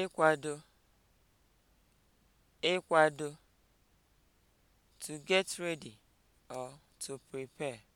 ịkwado ịkwado to get ready or to prepare